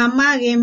Amaghị m.